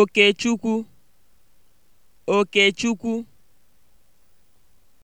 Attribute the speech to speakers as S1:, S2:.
S1: Okechukwu Okechukwu